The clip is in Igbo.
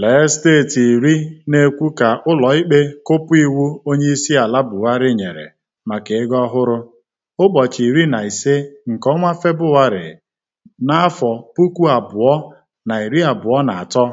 Lee steeti iri na-ekwu ka ikpe kụpụ iwu Onyeisiala Buhari nyere maka ego ọhụrụ, ụbọchị iri na ise nke ọnwa Febụwarị, n'afọ puku abụọ na iri abụọ na atọ.